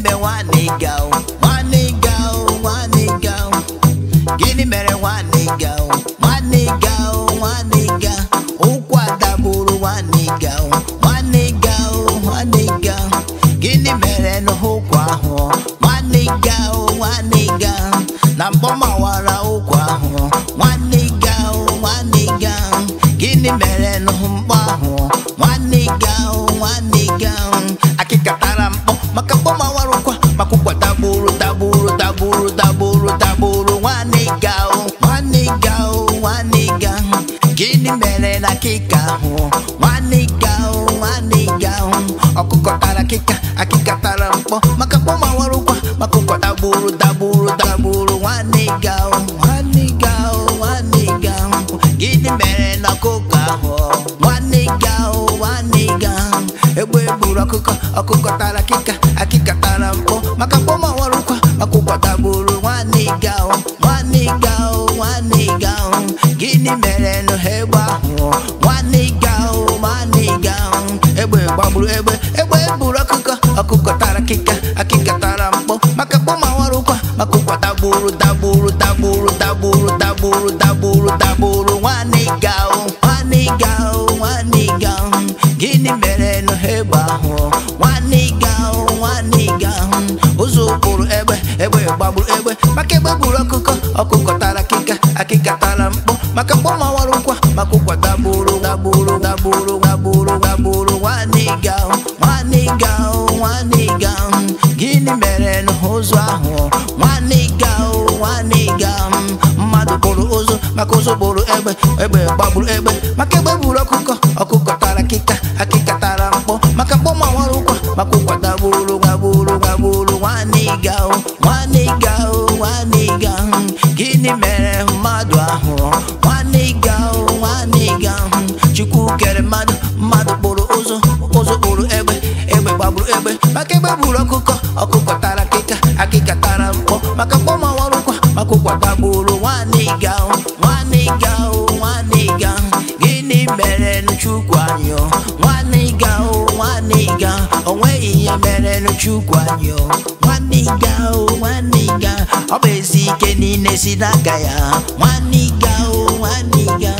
mbe nwa nịga o nwa nịga o nwa nịga o gịnị mere nwa nịga o nwa nịga o nwa nịga ụkwụ adagburu nwa o nwa nịga o nwa nịga gịnị mere n'ụkwụ ahụ nwa nịga na mgbọmawara o culpa tá bolo, tá bolo, tá bolo, tá bolo, tá bolo. Uma nega, Que nem melena que carro. Uma nega, uma nega. A cuca cara que cá, a que cá tá lampo. Macaco maluco, macuca tá bolo, tá bolo, tá bolo. Uma nega, uma nega, Que nem melena que carro. Uma nega, uma nega. Eu vou buraco, a cuca tá que ndị mere nụ ha egbe ahụ nwanne ga nwanne ga egbe gbagburu egbe egbe buru ọkụkọ ọkụkọ tara akịka akịka tara mkpọ maka mkpọ ma nwara maka ụkwa dagburu dagburu dagburu dagburu dagburu dagburu dagburu nwanne ga nwanne ga nwanne ga gịnị mere nụ ha egbe ahụ nwanne ga ụzọ ụkpụrụ egbe egbe gbagburu egbe maka egbe buru ọkụkọ ọkụkọ tara akịka akịka tara makaboma walukwa makugwa gabulu gabulu gabulu gabulu gabulu wanigao wanigao wanigao gini merenu ụzọ ahụ wanigao wanigao mmadụ bụrụ ụzụ maka ụzụ bụrụ egbe egbe gbagburu egbe maka egbe bụrụ ọkụkọ ọkụkọ tara akịka akịka tara mkpọ maka mkpọma warụkwa maka ụkwa gaburu gaburu gaburu wanigao wanigao wanigao gịnị mere ahụ kere mmadụ mmadụ kpụrụ ụzụ ụzụ kpụrụ egbe egbe gbagburu egbe maka egbe gburu ọkụkọ ọkụkọ tara akịka akịka tara mkpọ maka mkpọmọwarụkwa maka ụkwa dagburu nwanne ga nwanne ga nwanne ga gịnị mere chukwu anyị nwanne ga nwanne ga o nweghị ihe mere chukwu anyị nwanne ga nwanne ga ọ bụ ezi ike niile si n'aka ya nwanne ga nwanne ga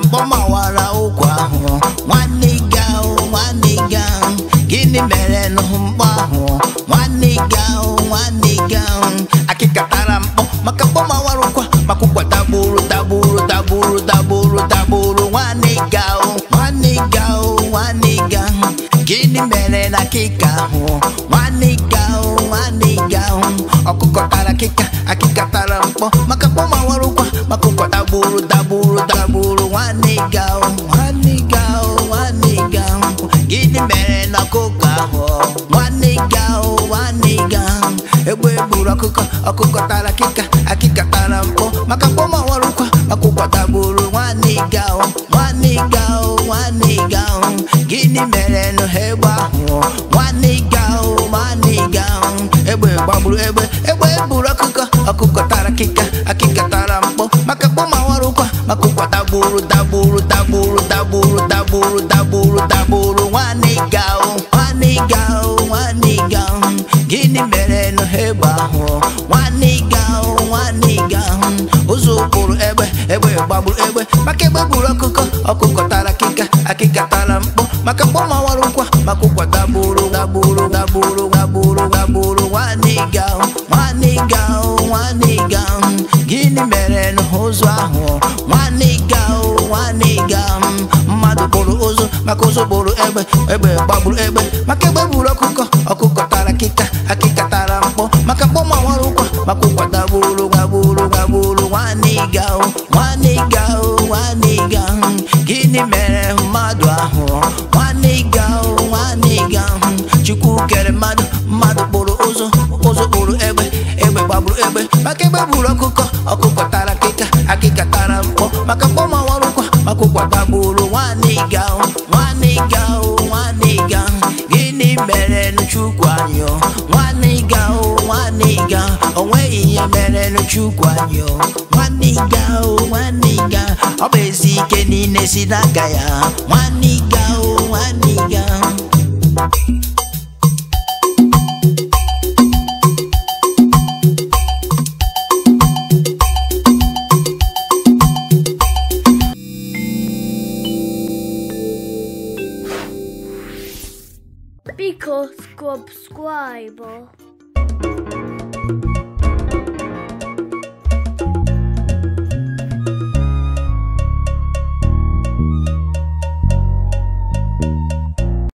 and bummer. gburu ọkụkọ ọkụkọ tara akịka akịka tara mpụ maka mkpọma ọrụkwa akwụkwọ tagburu nwanne ịga ahụ nwanne ịga ahụ nwanne ịga ahụ gịnị mere nụ ha egbe ahụ nwanne ịga ahụ nwanne ịga ahụ egbe gbagburu egbe egbe gburu ọkụkọ ọkụkọ tara akịka akịka tara mpụ maka mkpọma ọrụkwa akwụkwọ tagburu ọkụkọ tara akịka akịka tara mkpọ maka mkpọ ma wara maka ụkwa dagboro dagboro dagboro dagboro dagboro nwanne ga ahụ nwanne ga ahụ nwanne ga ahụ gịnị mere n'ụzọ ahụ nwanne ga ahụ nwanne ga ahụ mmadụ bụrụ ụzọ maka ụzọ bụrụ egbe egbe gbagburu egbe maka egbe gburu ọkụkọ ọkụkọ tara akịka akịka tara mkpọ maka mkpọ ma wara maka ụkwa dagboro dagboro dagboro gịnị mere mmadụ ahụ nwanne ịga ahụ nwanne ịga ahụ chukwu kere mmadụ mmadụ kpụrụ ụzụ ụzụ kpụrụ egbe egbe gbagburu egbe maka egbe gburu ọkụkọ ọkụkọ tara akịka akịka tara mkpọ maka mkpọmanwarụkwa maka ụkwa gbagburu nwanne ịga ahụ nwanne ịga ahụ nwanne ịga gịnị mere chukwu anyị nwanne ịga ahụ nwanne ịga ahụ o ihe mere chukwu anyị Because, ezi ike ya o